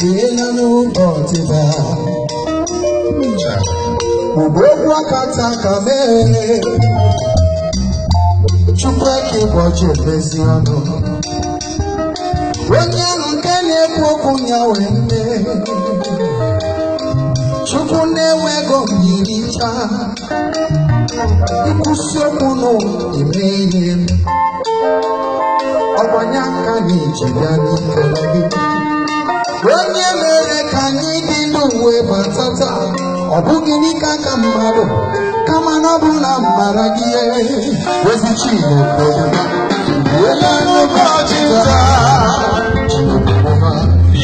dịrịlanụ ụbọchị taa ugbo okwu akata ka mere chukwu eke ụbọchị emezi ọnụ onye ahụ nke na-ekwu okwu ya wee nne chukwu na onye mere ka anyị dị n'ụwa bata taa ọ bụghị n'ike aka mmadụ kama na ọ bụ na mara gị ozi Chineke Iwela n'ụbọchị taa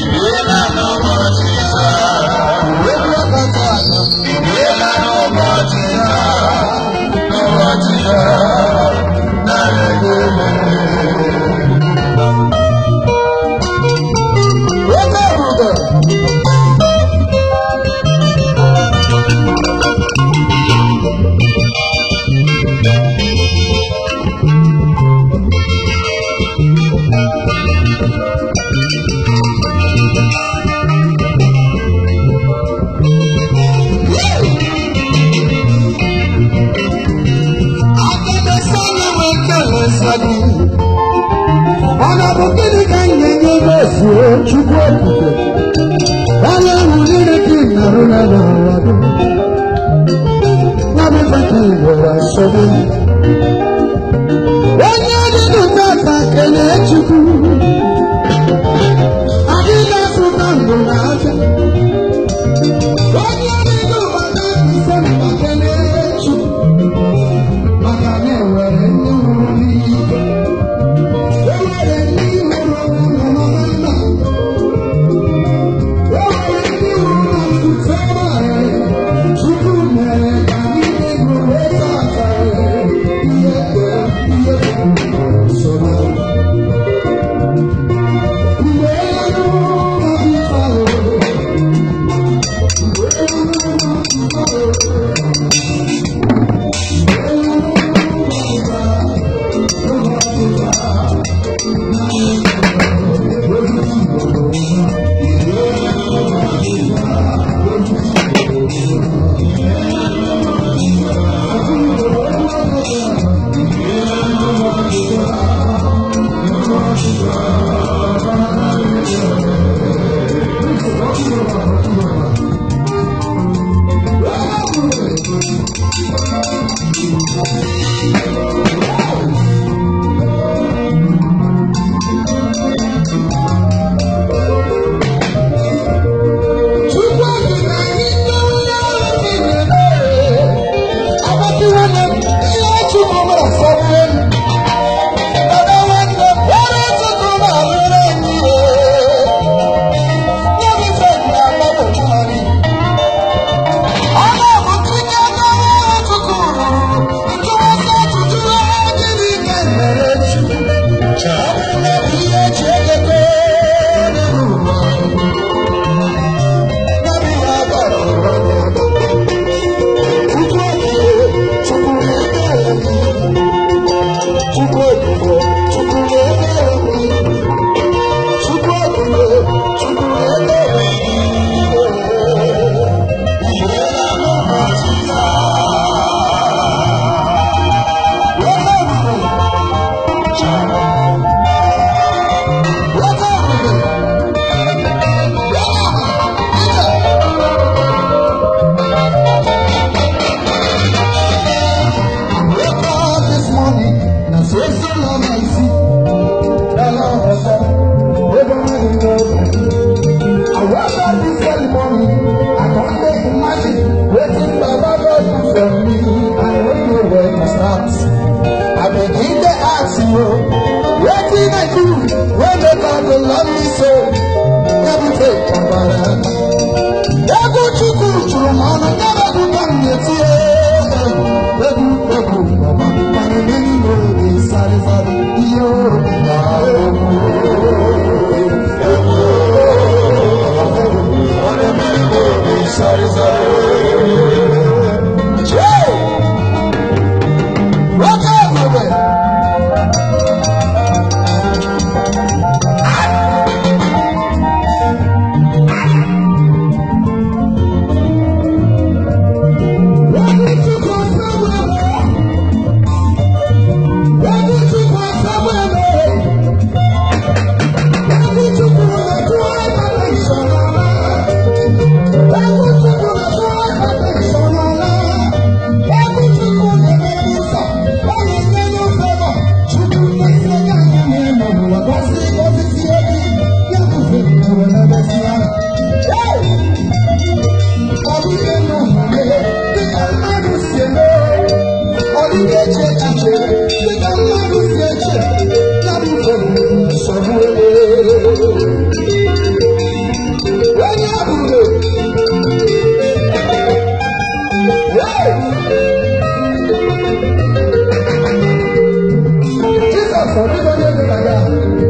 Iwela n'ụbọchị taa Iwela asadu ọ na-abụ gịnị ka m ga-enye ebe efuo chukwu okike onye ahụ niile dị narụ na n'ụwa gị nwa m ife ka igbo wa nsogbu Thank you. Oh, 谢谢大家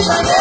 Sunshine.